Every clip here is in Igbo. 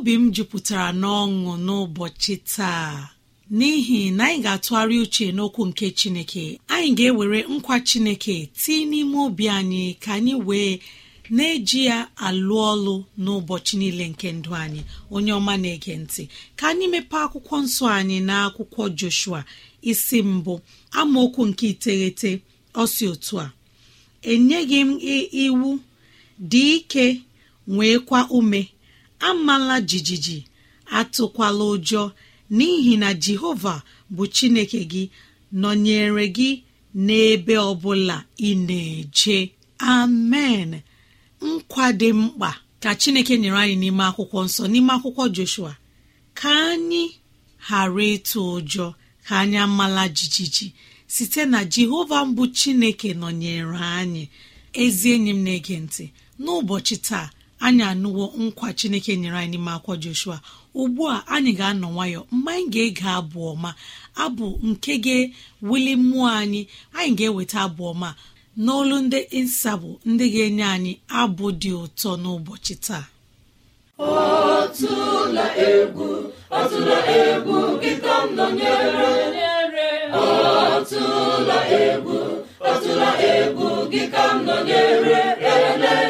obi m jupụtara n'ọṅụ n'ụbọchị taa n'ihi na anyị ga-atụgharị uche n'okwu nke chineke anyị ga-ewere nkwa chineke tii n'ime obi anyị ka anyị wee na-eji ya alụ ọlụ n'ụbọchị niile nke ndụ anyị onye ọma na-ege ntị ka anyị mepee akwụkwọ nsọ anyị na akwụkwọ Joshua isi mbụ amaokwu nke iteghete ọsi otu a enyeghị m iwu dị ike nwee kwa ume amala jijiji atụkwala ụjọ n'ihi na jehova bụ chineke gị nọnyere gị n'ebe ọbụla ị na-eje amen nkwa dị mkpa ka chineke nyere anyị n'ime akwụkwọ nsọ n'ime akwụkwọ joshua ka anyị ghara ịtụ ụjọ ka anyị amala jijiji site na jehova mbụ chineke nọnyere anyị ezi enyi m na-ege ntị n'ụbọchị taa anyị anụwo nkwa chineke nyere anyị n'ime akwọ joshua ugbu a anyị ga-anọ nwayọ mgbe anyị ga-ege abụ ọma abụ nke ga-ewuli mmụọ anyị anyị ga-eweta abụ ọma n'olu ndị nsabụ ndị ga-enye anyị abụ dị ụtọ n'ụbọchị taa ọtụla egwu ọtụla egwu gị ka m nọnyere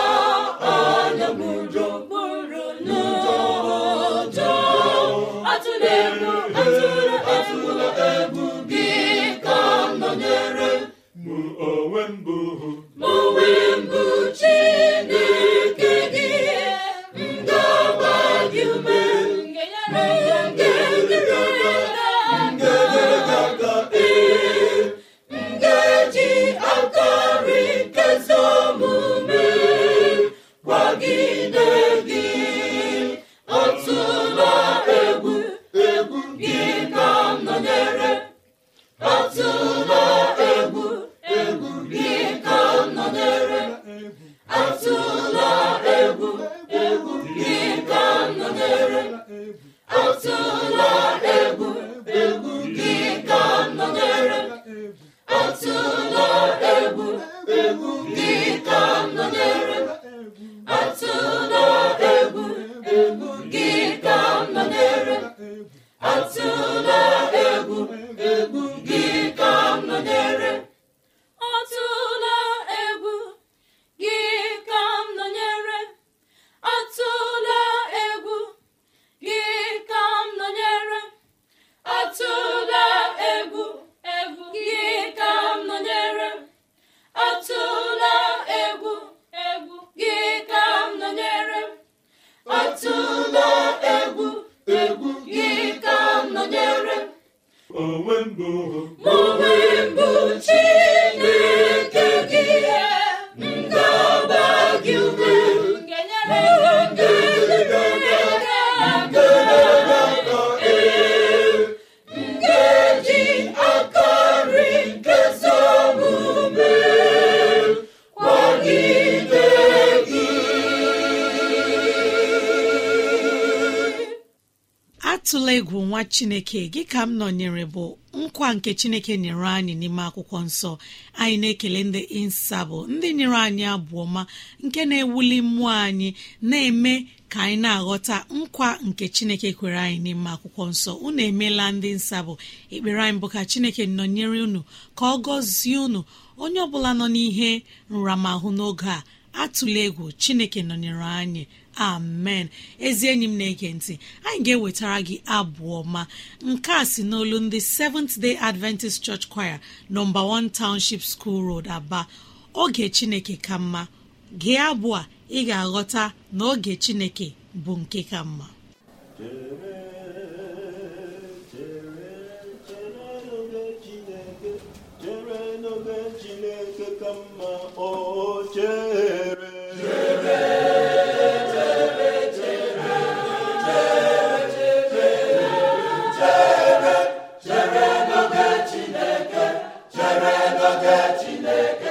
n'onwe mbụ n'onwe mbụ chi chineke gị ka m nọnyere bụ nkwa nke chineke nyere anyị n'ime akwụkwọ nsọ anyị na-ekele ndị insabụ ndị nyere anyị abụọ ma nke na-ewuli mmụọ anyị na-eme ka anyị na-aghọta nkwa nke chineke kwere anyị n'ime akwụkwọ nsọ unu emeela ndị nsabụ ekpere anyị bụ ka chineke nọnyere unu ka ọ gọzie unu onye ọ bụla nọ n'ihe nramahụ n'oge a atụla egwu chineke nọnyere anyị amen ezi enyi m na-ege ntị anyị ga-ewetara gị abụọ ma, nke a si n'olu ndị Seventh Day Adventist Church Choir nọmba 1 Township School Road Aba oge Chineke ka mma gị abụọ ị ga-aghọta na oge Chineke bụ nke ka mma chere n'oge Chineke ka mma o chere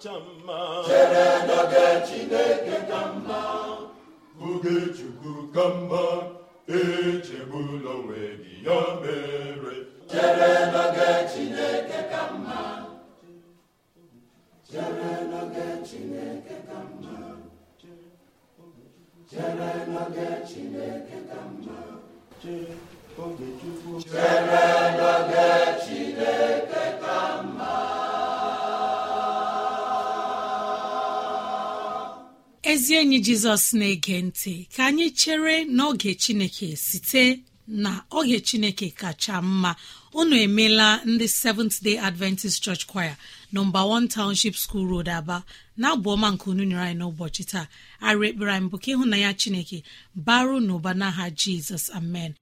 kacha mma chere n'oge chineke ka mma oge chukwu ka mma echegbula onwe gị ya mere chere n'oge chineke ka mma chere n'oge chineke ka mma chere n'oge chineke ka mma chere n'oge chineke ezi enyi jizọs na-ege ntị ka anyị chere n'oge chineke site na oge chineke kacha mma unu emeela ndị seventh day adventist church choir nọmba one township school road aba na ọma nke unu nyere anyị n'ụbọchị taa arụ ekpere anyị bụ ka ịhụnanya chineke baru n'ụba n'aha jizọs amen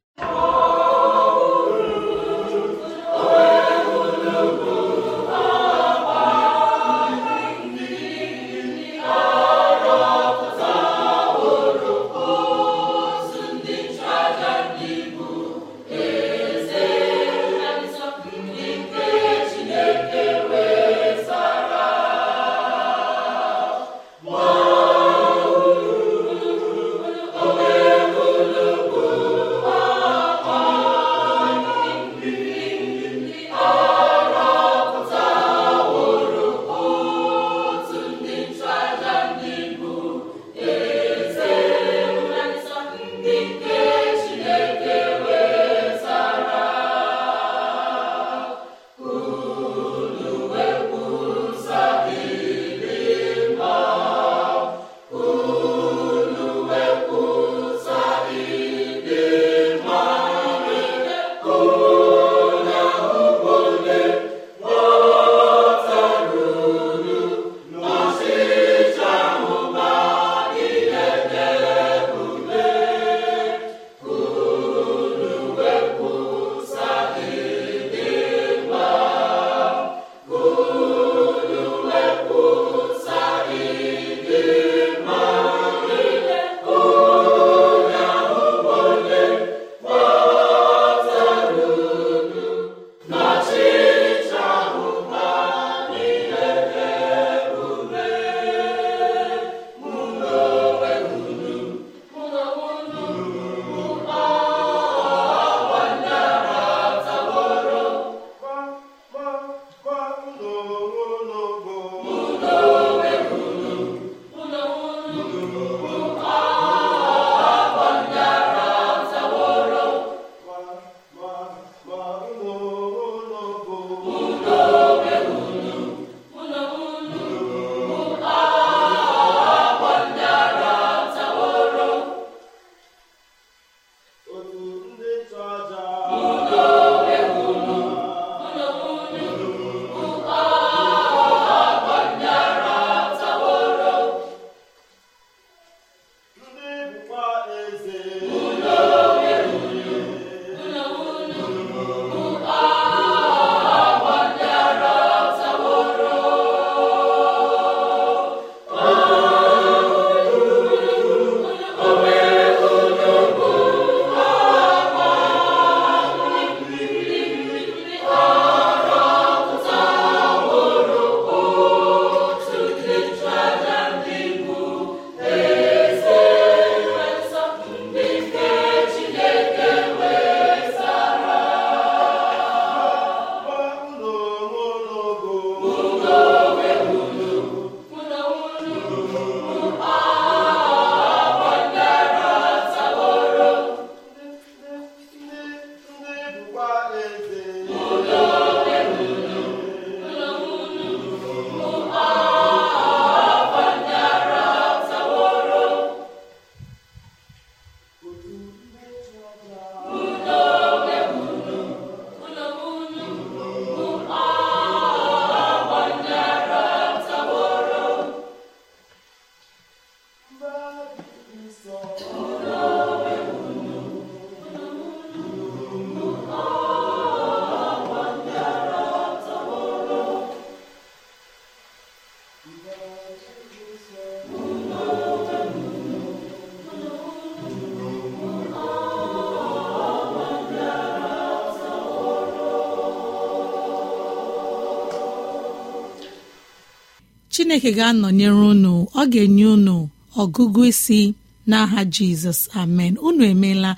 chineke ga-anọnyere unu ọ ga-enye unu ọgụgụ isi n'aha jizọs amen unu emeela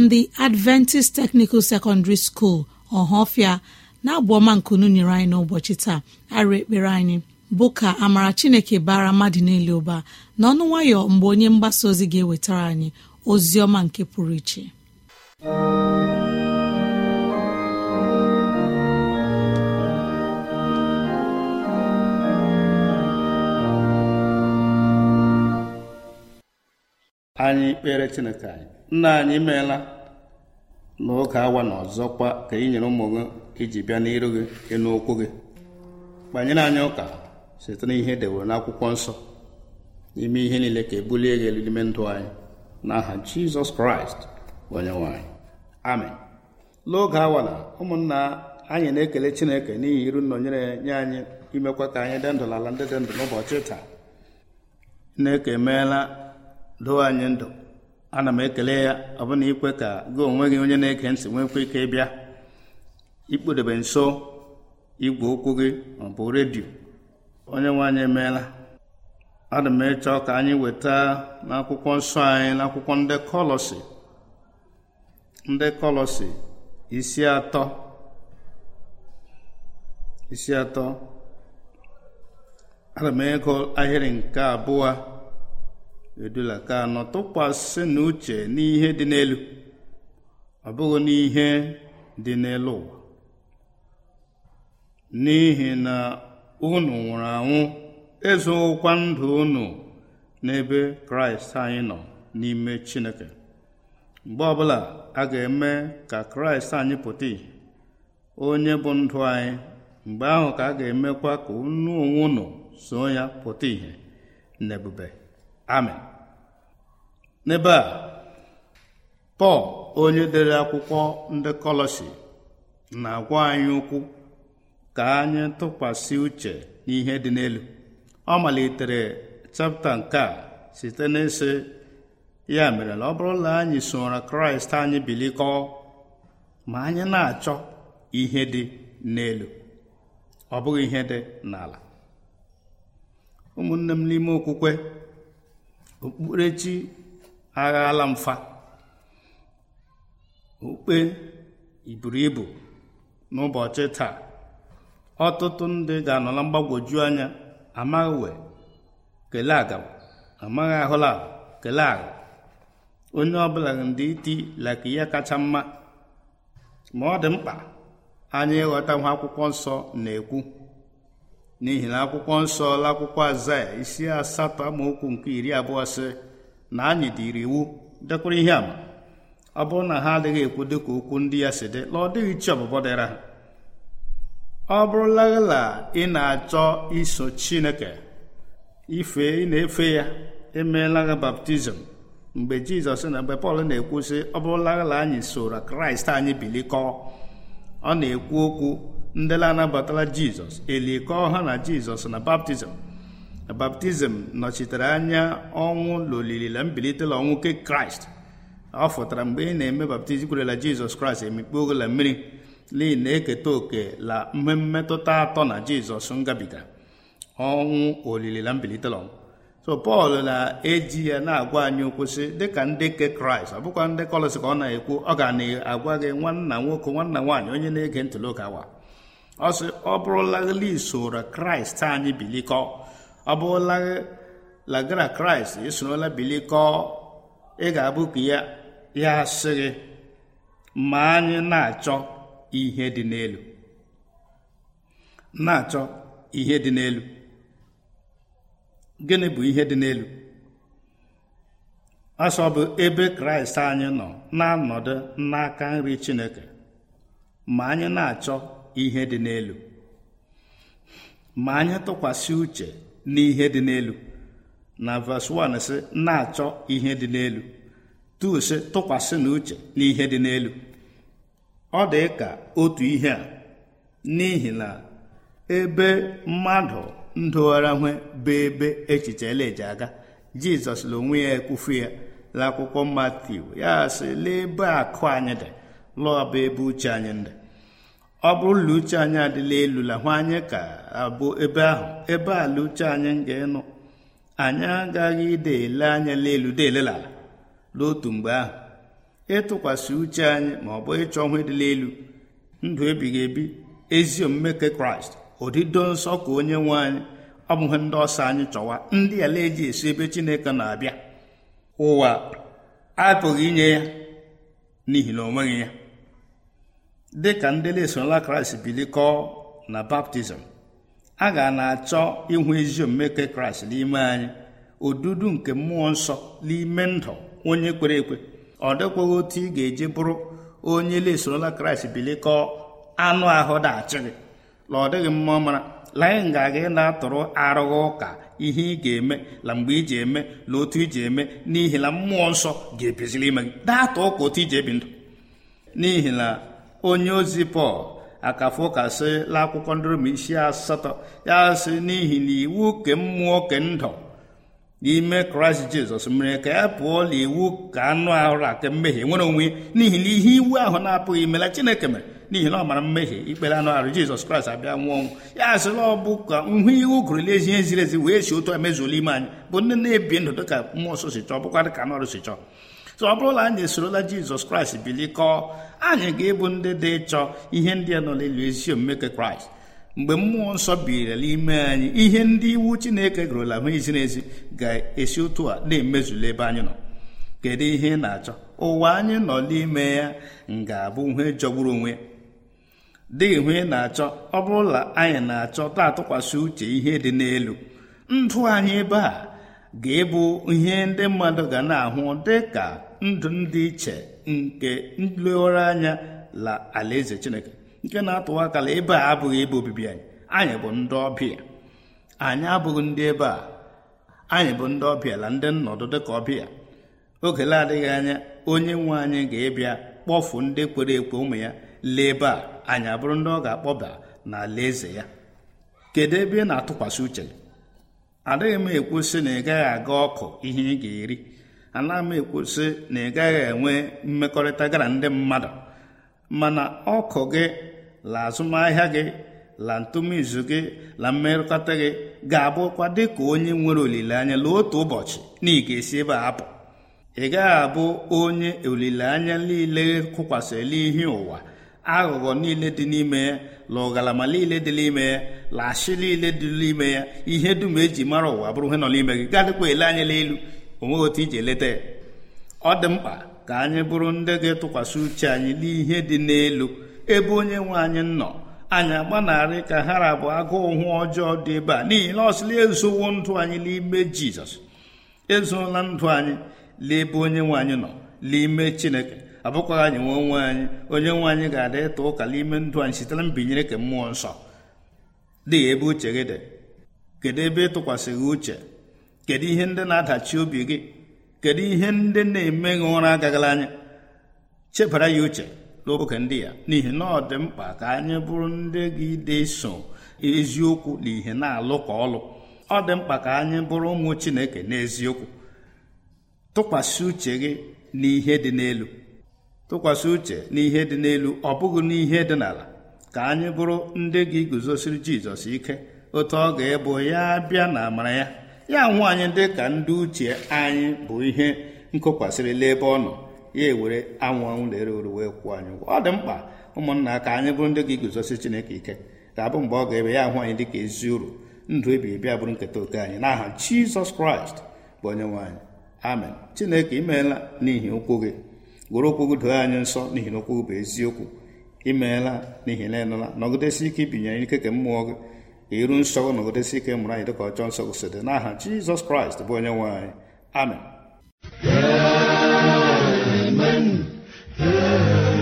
ndị adventist technical secondary school ọhafia na-abụọma nkunu nyere anyị n'ụbọchị taa arụ ekpere anyị bụ ka amara chineke bara mmadụ niile ụba n'ọnụ nwayọ mgbe onye mgbasa ozi ga-ewetara anyị ozi ọma nke pụrụ iche anyị kpere chineke anyị nna anyị meela n'oge awa na ọzọkwa ka ị nyere ụmụ gị iji bịa n'iru gị ịnụ okwu gị kpanyere anyị ụka site n'ihe e dewere n'akwụkwọ nsọ n'ime ihe niile ka ebulie gị elu n'ime ndụ anyị n'aha jizọs kraịst onye nwanyị amen n'oge awala ụmụnna anyị na-ekele chineke n'ihi iru nnọnyere nye anyị imekwa ka anyị dị ndụ n'ala ndị dị ndụ n'ụbọchị taa nneke emeela doo anyị ndụ ana m ekele ya ọbụna ikwe ka gị onwe gị onye na-ege ntị nwekwa ike ịbịa ikpodebe nso igwe ụkwụ gị ma bụ redio onye nwe anyị emeela ana m ịchọ ka anyị weta n'akwụkwọ nsọ anyị n'akwụkwọ ndị kọlọsị ndị kọlọsị isi atọ isi atọ ana m ịgụ ahịrị nke abụọ edula ka anọtụkwasị tụkwasị n'uche n'ihe dị n'elu ọ bụghị n'ihe dị n'elu ụwa n'ihi na unu nwụrụ anwụ ezoghịkwa ndụ unu n'ebe kraịst anyị nọ n'ime chineke mgbe ọbụla a ga-eme ka kraịst anyị pụta ìhè onye bụ ndụ anyị mgbe ahụ ka a ga-emekwa ka unu onwe unu so ya pụta ìhè n'ebube amen n'ebe a pọl onye dere akwụkwọ ndị kọlọsi na-agwa anyị ụkwụ ka anyị tụkwasị uche n'ihe dị n'elu ọ malitere chapta nke a site n'ịsị ya mere na ọ bụrụ na anyị soro kraịst anyị bilikọọ ma anyị na-achọ ihe dị n'elu ọ bụghị ihe dị n'ala ụmụnne m n'ime okwukwe okpukperechi aghala mfa okpukpe iburu ibu n'ụbọchị taa ọtụtụ ndị ga-anọla mgbagwoju anya amaghị wee kele aga amaghị ahụla kelee aga onye ọbụla ndị iti laka ihe kacha mma ma ọ dị mkpa anya ịghọta nwa akwụkwọ nsọ na-ekwu n'ihi na akwụkwọ nsọ akwụkwọ azaya isi asatọ amaokwu nke iri abụọ sị na anyị dịrị iwu dekwara ihe ama ọ bụrụ na ha adịghị ekwu dịka okwu ndị ya si dị na ọ dịghị chi ọbụbọ dịra ha ọ bụrụlagala ị na-achọ iso chineke ife ị na-efe ya emeela baptizim mgbe jizọs na mgbe pọl na-ekwu sị ọ bụrụlagala anyị soro kraịst anyị bilikọọ ọ na-ekwu okwu ndị na-anabatala jizọs elikọọ ha na jizọs na baptizim na baptizim nọchitere anya ọnwụ na olili na mbilite ọnwụ nke kraịst ọ fụtara mgbe ị na-eme baptizim kwerela jizọs kraịst emikpe la mmiri n'ihi na-eketa òkè la mmetụta atọ na jizọs ngabiga ọnwụ olili na mbilite na ọnwụ so pọl na-eji ya na-agwa anyị okwụsị sị dịka ndị ke kraịst ọ bụkwa ndị kọlọsị ka ọ na-ekwu ọ ga na-agwa gị nwanna nwoke nwanna nwaanyị onye na-ege ntụli ụka awa ọ sị ọ bụrụlaghịla isoro kraịst anyị bilikọ ọ bụrụlaghị lagara kraịst esorola bilikọ ị ga-abụ ka ya ya sị gị ma anyị na-achọ ihe dị n'elu na-achọ ihe dị n'elu gịnị bụ ihe dị n'elu asọ bụ ebe kraịst anyị nọ na-anọdụ n'aka nri chineke ma anyị na-achọ ihe dị n'elu ma anyị tụkwasị uche n'ihe dị n'elu na verse 1 sị na-achọ ihe dị n'elu 2 sị tụkwasị n'uche n'ihe dị n'elu ọ dị ka otu ihe a n'ihi na ebe mmadụ ndogharahwe bụ ebe echiche eleje aga jizọs n'onwe onwe ya ekwufu ya akwụkwọ matiu ya sị lee akụ anyị dị lụọ bụ ebe uche anyị dị ọ bụrụ na uche anyị adịla elu la hụ anyị ka abụ ebe ahụ ebe ala uche anyị ga ịnụ anyị agaghị idele anya n'elu deelela ala n'otu mgbe ahụ ịtụkwasị uche anyị ma ọ bụ ịchọ ịdịla elu ndụ ebighị ebi ezi omume nke kraịst odido nsọ ka onye nwe anyị ọ bụghị ndị ọsọ anyị chọwa ndị ala eji esi ebe chineke na-abịa ụwa apụghị inye ya n'ihi na o nweghị ya dị ka ndị na-esola kraịst bilikọọ na baptizim a ga na-achọ ịhụ ezi omume nke kraịst n'ime anyị odudu nke mmụọ nsọ n'ime ndụ onye kwere ekwe ọ dịkwaghị otu ị ga-eji bụrụ onye na-esorola kraịst bilikọọ anụ ahụ dachi gị na ọ dịghị mma mara laanyị ga-aga ị na-atụrụ arụghị ụka ihe ị ga-eme na mgbe iji eme na otu iji eme n'ihi na mmụọ nsọ ga-ebiziri ime gị datụ ụka otu iji ebi ndụ n'ihi na onye ozi pọl akafu kasị la akwụkwọ ndị Rom isi asatọ ya sị n'ihi na iwu ke mmụọ ke ndụ n'ime kraịst jizọs mere ka ya pụọ na ka anụ ahụ ake mmehie nwere onwe n'ihi na ihe iwu ahụ na-apụghị mela chineke mere n'ihi na ọ mara mmehie ikpere anụ ahụ jizọs kraịst abịa nwụọ ọnwụ ya sịla ọ bụ ka nhụ iwu gụrụla ezi ziri ezi wee si otu emezuola ime anyị bụ ndị na-ebi ndụ dịka mmụọ nsọ si chọọ bụkwa dịka anụ ọrụ si chọọ so ọ bụrụla anyị esorola jizọs kraịst bilikọọ anyị ga-ebu ndị dị ịchọ ihe ndị a nọ n'elu ezi omume kraịst mgbe mmụọ nsọ birila n'ime anyị ihe ndị iwu chineke gụrụla hụ izi n'ezi ga-esi otu a na-emezula ebe anyị nọ kedu ihe ị na-achọ ụwa anyị nọ n'ime ya ga-abụ ihe jọgburu onwe dị ihu ị na-achọ ọ bụrụla anyị na-achọ taa atụkwasị uche ihe dị n'elu ndụ anyị ebe a ga-ebu ihe ndị mmadụ ga na-ahụ dị ka ndụ ndị iche nke nlegharị anya la alaeze chineke nke na-atụwa akala ebe a abụghị ebe obibi anyị anyị bụ ndị ọbịa anyị abụghị ndị ebe a anyị bụ ndị ọbịa la ndị nnọdụ dịka ọbịa oge na-adịghị anya onye nwe anyị ga-ebịa kpọfu ndị kwere ekwe ụmụ ya lee ebe a anyị abụrụ ndị ọ ga-akpọba na alaeze ya kedu ebe ị na-atụkwasị uche adịghị m ekwu sị na ị gaghị aga ọkụ ihe ị ga-eri ana m ekwusị na ị gaghị enwe mmekọrịta gara ndị mmadụ mana ọkụ gị la azụmahịa gị la ntụmizu gị la mmekọta gị ga-abụkwa dị ka onye nwere olileanya la otu ụbọchị na ị ga-esi ebe a ị gaghị abụ onye olileanya niile kụkwasịrị ihe ụwa aghụghọ niile dị n'ime ya la ọgalama niile dị n'ime ya la ashị niile dị n'ime ya ihe dum eji mara ụwa bụrụ ihe nọ n'ime gị gadịkwa ele anya n'elu onweghị otu iji leta ya ọ dị mkpa ka anyị bụrụ ndị ga-etụkwasị uche anyị n'ihe dị n'elu ebe onye nwe anyị nọ anyị agbanarị ka hara bụ agụụ hụ ọjọọ dị ebe a n'ihi na ọsịla ezowo ndụ anyị n'ime jizọs ezuola ndụ anyị n'ebe onye nwe anyị nọ n'ime chineke abụkwaghị anyị nwe onwe anyị onye nwe anyị ga-adị ịta ụka n'ime ndụ anyị site na mbinyere nke mmụọ nsọ dị ebe uche gị dị kedu ebe ịtụkwasịghị uche kedu ihe ndị na-adachi obi gị kedu ihe ndị na-eme gị ụra agagala anya chebara ya uche n'oge ndị ya n'ihi na ọ dị mkpa ka anyị bụrụ ndị gị deso eziokwu na ihe na-alụ ka ọlụ ọ dị mkpa ka anyị bụrụ ụmụ Chineke n'eziokwu tụkwasị uche gị n'ihe dị n'elu tụkwasị uche n'ihe dị n'elu ọ bụghị n'ihe dị n'ala ka anyị bụrụ ndị gị guzosiri Jizọs ike otu ọ ga-ebu ya bịa na amara ya ya nwaanyị dị ka ndị uche anyị bụ ihe nkokwasịrịla ebe ọ nọ ya ewere anwụ na-ere uru wee kwụ anyị ụgwọ ọ dị mkpa ụmụnna ka anyị bụrụ ndị ga-eguzosi chineke ike ga-abụ mgbe ọ ga-ebe ya ahụ anyị dị ka ezi uru ndụ ebighị ebi bụrụ nketa oke anyị n'aha jizọs kraịst bụ onye nwaanyị amen chineke imeela n'ihi okwu gị gwere okwu gị doo anyị nsọ n'ihi na okwu gị bụ eziokwu imeela n'ihi na ịnụla nọgidesi ike ibinyere ike ka mmụọ gị iru nsọ na ụdịsi ike mụrụ anyị dịka ọjọọ nsọ si dị n'aha jizọs kraịst bụ onye nwe anyị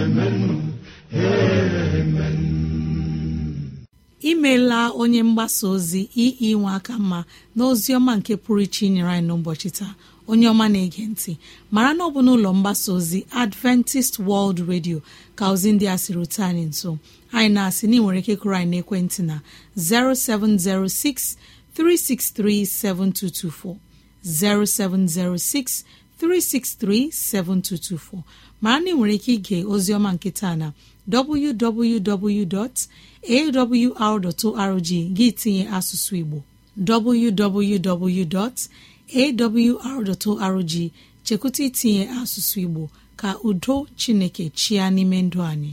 amen imeela onye mgbasa ozi ii nwe aka mma na ọma nke pụrụ iche inyere anyị n'ụbọchị taa onye ọma na-ege ntị mara na ọ bụ n'ụlọ mgbasa ozi adventist world radio ka ozi ndị a siri rute anyị nso anyị na-asị na ị nwere ike kụrụ anyị n'ekwentị na 0706 363 7224 0706 363 7224 Ma anyị nwere ike ige oziọma nkịta na www.awr.org gị tinye asụsụ Igbo www.awr.org chekwụta itinye asụsụ Igbo ka udo Chineke chịa n'ime ndụ anyị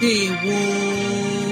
ndewo